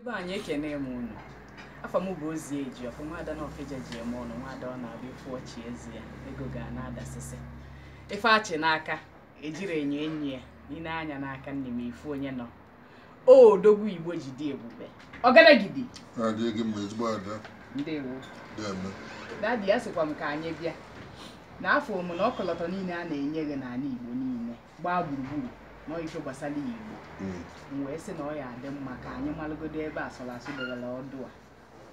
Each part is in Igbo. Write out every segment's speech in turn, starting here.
ebe anyị ekene m unu afọ m bụ ozi eji ọfọ nwaada na ofeja ji eme ọnụ nwada ọ na-abịa ịfụ ọchị ezi ya ego ga na-adasịsị ife achị n'aka ejiri enyo enyi ya n'ile anya n'aka nne m ifu onye nọ o dogbu igbo ji dị ebube ọgaragidi dadi ya sịkwa m ka anyị bịa n'afọ m na ọkọlọtọ niile a na-enye gị n'ala igbo niile gbaa gburugburu n'ife gbasara igbo m mm. wee sị na ọ ya adị mma ka anyị malụgodo ebe asụlasụ debere ọdụ a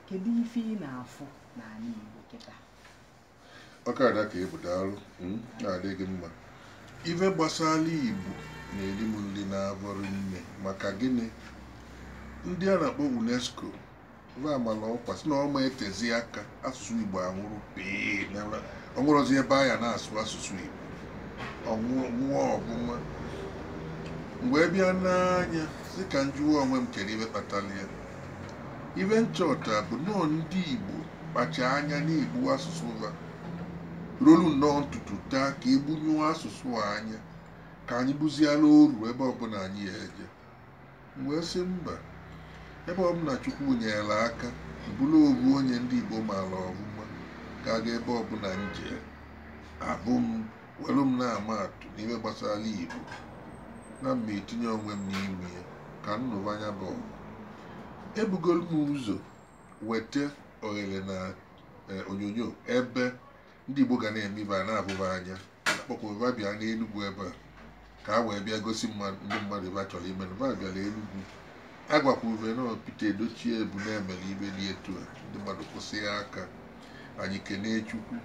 kedu ife ị na-afụ n'ala igbo kịta ọkada ka ebudalụ mm, na adịghị mma ife gbasara igbo na-eri m nri na-abụrụ nne maka gịnị ndị a na-akpọ unesco amala ọkwa si na ọma etezi aka asụsụ igbo anwụrụ pee ọ nwụrụzi ebe a ya na-asụ asụsụ igbo ọnwụọ ọbụma mgbe e bịa n'anya dịka njụwa onwe m chere ibe kpatara ya ibe nchọta bụ nnọọ ndị Igbo kpacha anya na-egbu asụsụ ha rolu nnọọ ntutu taa ka egbunyụọ asụsụ anya ka anyị buziela oru ebe ọbụla anyị ya eje wee sị mba ebe ọbụla Chukwu nyere aka bụrụ obu onye ndị Igbo maara ọmụma ka ebe ọbụla m jee abụ m welu m na-ama atụ n'ime gbasara Igbo na mba etinye onwe m n'ime ya ka nnụba anya bụ ebugoro m ụzọ weta oghere na eh, onyonyo ebe ndị Igbo ga na-eme ibe a na-abụba anya akpọkwa bịa n'Enugwu ebe a ka a wee bịa gosi ndị mmadụ ebe a chọrọ ime na bịara Enugwu agwakwa ube na pite Edochie bụ na-emere ibe dị etu a ndị mmadụ kwụsị ya aka anyị kelee Chukwu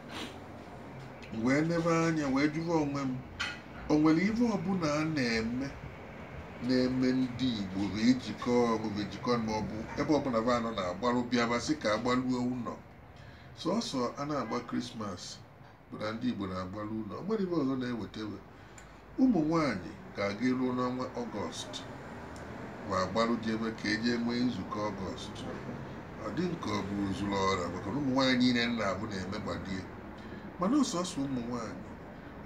wee lebe anya wee jụrụ onwe m o nwere ibe ọbụla a na-eme na-eme ndị Igbo ejikọ ọrụ ejikọ maọbụ ebe ọbụla be anọ na-agbalụ bịaba sị ka agbalụo ụlọ sọsọ a na-agba krismas bụ ndị Igbo na-agbalụ ụlọ ọ nwere ọzọ na-ewetewe ụmụ nwanyị ga-aga eruo n'ọnwa ọgọst ma agbalụ ji ebe ka eji nwee nzukọ ọgọst ọ dị nke ọ bụ zuru ọra maka na ụmụ nwaanyị niile na-abụ na-eme gbadie mana ọsọsọ ụmụ nwaanyị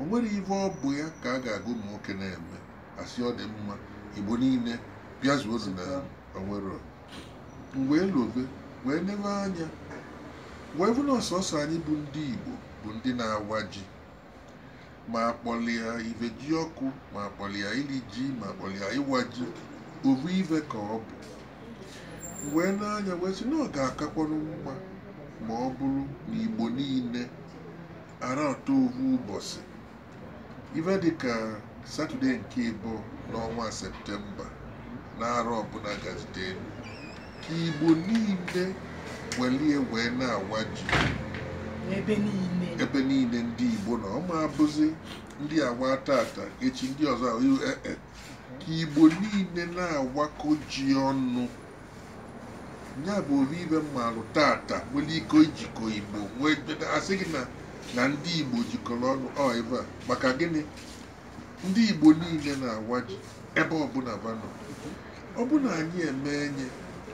o nwere ive ọ bụ ya ka a ga-agụ ụmụ nwoke na-eme asị ọ dị mma igbo niile bịazuo ozu na onwero mgbe elove wee nebe anya wee bụ na ọsọsọ anyị bụ ndị igbo bụ ndị na-awa ji ma akpọlịa ive ji ọkụ ma akpọlịa ili ji ma akpọlịa ịwa ji ovu ive ka ọ bụ wee n'anya wee sị na ọ ga-akakwanụ mma ma ọ bụrụ na igbo niile ara ọtọ ovu ụbọchị ife dịka satọde nke ịbụ n'ọnwa septemba n'arọ ọbụla gazite ka igbo niile welie wee na-awa ji ebe niile ndị igbo na ọma abụzi ndị awa tata echi ndị ọzọ ka igbo niile na-awakọ ji ọnụ ya bụ obi ibe mmalụ tata nwere ike ijikọ igbo asị gị na. na ndị Igbo jikọrọ ọnụ ọ ebe a maka gịnị ndị Igbo niile na-awa ji ebe ọbụla banọ ọ bụ na anyị eme enye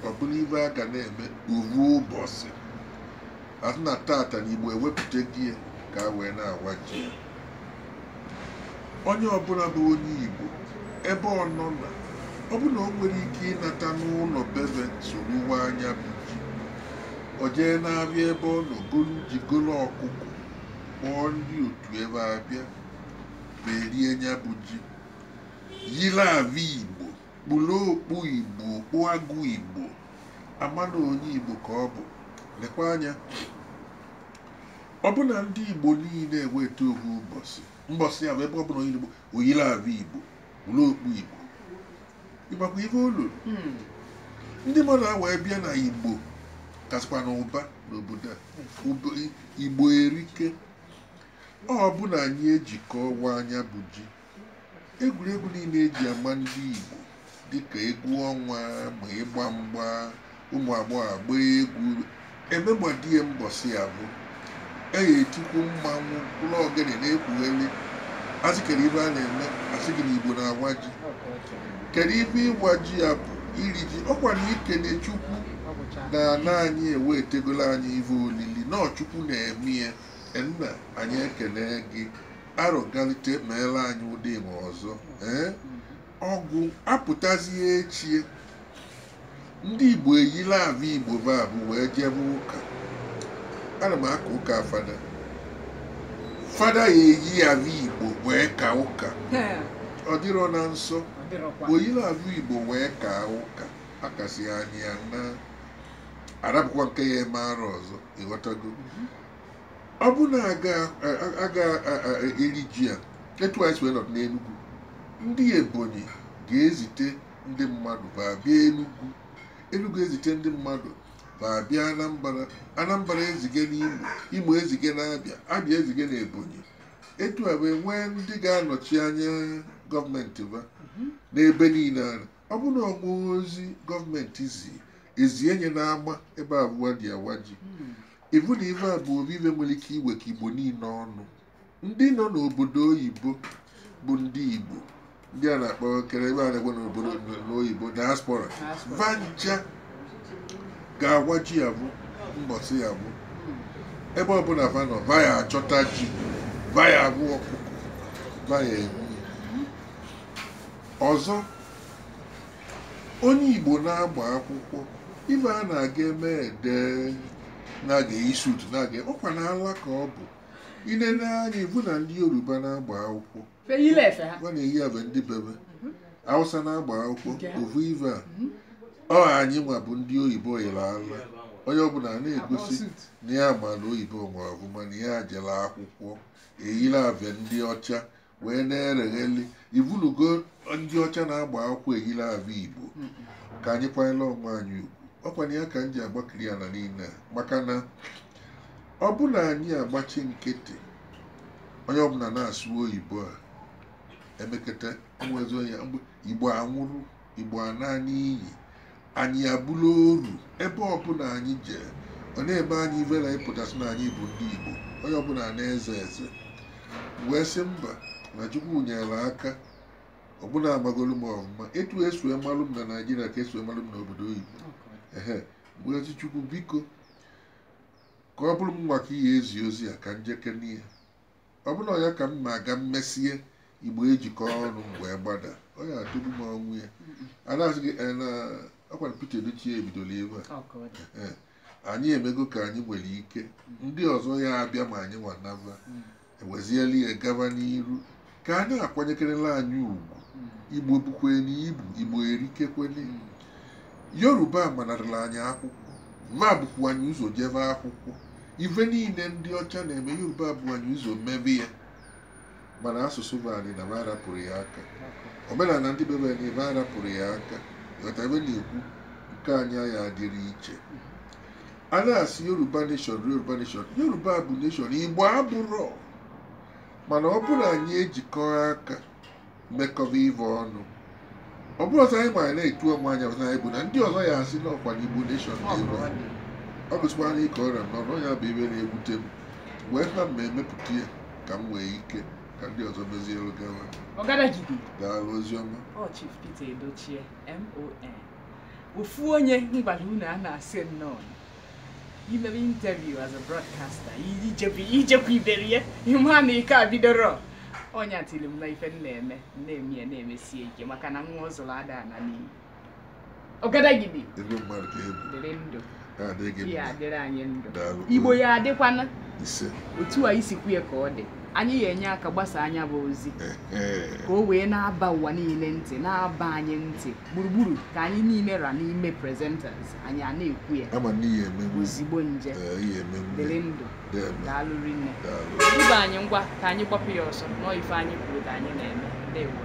ọ ibe a ga na-eme uru ụbọchị asị na tata na Igbo ewepụta gị ya ka wee na-awa ji ya onye ọbụla bụ onye Igbo ebe ọ nọ na ọ na o nwere ike ịnata n'ụlọ bebe soro anya bụ ji o jee n'abịa ebe ọ nọ golu ji golo ọkụkọ kpọọ ndị otu ebe abịa berie nya bụ ji yiri ava igbo kpụrụ okpu igbo okpu agụ igbo amana onye igbo ka ọ bụ lekwa anya ọbụna ndị igbo niile eweta ohu ụbọchị mbọsị ahụ ebe ọbụla onye igbo oyiri ava igbo kpụrụ okpu igbo ịgbakwa ihe olu hmm. ndị mmadụ a wee bịa na igbo kasịkwa na ụba n'obodo a hmm. igbo erike ọ bụ na anyị ejikọ anya bụ ji egwuregwu niile eji ama ndị Igbo dịka egwu ọnwa ma ịgba mgba ụmụ agbọghọ agba egwu emegbadie mbọsị abụ eyi etikwu mmanwụ ụlọ ogene na-ekwugheri asị kere ibe a na-eme asị gị na Igbo na-agwa ji kedu ibe ịgwa ji ya bụ iri ji ọkwa na ikene Chukwu na ana anyị ewetegolo anyị ive olili nọ Chukwu na-eme ya nna anyị ekele gị arụgalite meela anyị ụdị ma ọzọ ee eh? ọgwụ apụtazie echi ndị igbo eyila ahụ igbo babụ wee jebe ụka ana m aka ụka fada fada ya eyi ahụ igbo wee ka ụka ọ dịrọ na nsọ oyila ahụ igbo wee ka ụka akasi anyị na nke ya eme arụ ọzọ ịghọtago mhm. ọ bụ na aga eri ji a etu anyị wee nọ n'Enugu ndị Ebonyi ga-ezite ndị mmadụ babịa bịa Enugu Enugu ezite ndị mmadụ baa bịa Anambra Anambra ezige n'Imo Imo ezige n'Abịa Abịa ezige n'Ebonyi etu a wee nwee ndị ga-anọchi anya gọọmenti ba mhm. n'ebe niile ara ọ bụ na ozi gọọmenti zi ezi enye na-agba ebe abụwa dị awa ji hmm. ivu na ive a bụ obibe nwere ike ka igbo niile ọnụ ndị nọ n'obodo oyibo bụ ndị igbo ndị a na-akpọ kere ebe a na egwe n'obodo n'oyibo diaspora vanja ga-agwa ji ya bụ mbọsị ya bụ ebe ọbụla vanọ vaya achọta ji vaya agwụ ọkụkọ vaya egwu ọzọ onye igbo na-agba akwụkwọ ibe a na-aga eme edee. na-aga isut na-aga ọkwa na ala ka ọ bụ inene anya ibu na ndị yoruba na-agba akwụkwọ na-eyi abịa ndị bebe awụsa na-agba akwụkwọ ovu ive ọ anyị nwa bụ ndị oyibo yere ala onye ọbụla na-egosi na ya ma na oyibo ma ọ bụ mana ya jere akwụkwọ eyiri abịa ndị ọcha wee na-eregheli ibunugo ndị ọcha na-agba akwụkwọ eyiri abịa igbo ka anyị kwanyela onwe anyị ugwu ọkwanye ya ka m ji agbakiri ala niile maka na ọ anyị agbachi nkịtị onye ọbụla na-asụ oyibo a emekata enwezi onye igbo anwụrụ igbo ana n'iyi anyị abụla oru ebe ọbụla anyị jee ọ na-eme anyị ivela ịpụtasị na anyị bụ ndị igbo onye ọbụla na-eze eze wee sị mba na chukwu nyere aka ọbụna agbagolu m ọmụma etu esu malụ m na naijiria ka esue malụ m n'obodo oyibo Ngozi Chukwu biko ka ọ bụrụ m nwa ihe ezi ozi a ka njeke n'ihe ọ bụrụ ya ka m ma aga mmesie igbo ejikọ ọrụ mgbe gbada ọ ya adịbu m ọnwụ ya adazi gị ọkwara Peter Edochie ebidola ebe a anyị emego ka anyị nwere ike ndị ọzọ ya abịa ma anyị nwanaba eweziela ya gaba n'iru ka anyị akwanyekerela anyị ugwu hmm. igbo bukwe n'ibu igbo erikekwele hmm. yoruba manarịla anyị akwụkwọ ma bụkwa anyị ụzọ jebe akwụkwọ ife niile ndị ọcha na-eme yoruba bụ anyị ụzọ mmebe ya mana asụsụ bụ anyị na arapụrụ ya aka omenala ndị bebe anyị ebe arapụrụ ya aka ghọta ebe na-ekwu nke anyị agha adịrị iche a na-asị yoruba neshọn yoruba neshọn yoruba bụ neshọn igbo abụrọ mana ọ bụrụ anyị ejikọ aka mekọba ive ọnụ ọ bụrụ ọzọ anyị mara na-etu ọmụ anya ọzọ anyị bụ na ndị ọzọ ya asị n'ọkwa n'Igbo nation na-enwe ọ bụchikwa na ịkọ ọrịa m n'ọrụ ya bụ ibe na-ewute m wee ha ma emepụta ya ka m nwee ike ka ndị ọzọ mezie elu gawa daalụ oziọma ofu onye mgbada unu a na-asị nnọọ imebe interview as a broadcaster ijekwa iberi ya ịma na ike a bidoro onye tiri m na ife m na-eme na-eme ya na-emesie ike maka na nwa ọ ada ana n'iyi ọgadagidi dịrị ndụ ya adịrị anyị ndụ igbo ya adịkwana otu a isikwu ya ka ọ dị anyị ga-enye aka gbasa anya bụ ozi ka o wee na-aba ụwa niile ntị na-aba anyị ntị gburugburu ka anyị niile ra n'ime presenters anyị a na-ekwu ya ozigbo nje dịrị ndụ daalụrị nne duba anyị ngwa ka anyị kpọpụ ya ọsọ nọọ ife anyị kwuru ka anyị na-eme ndewo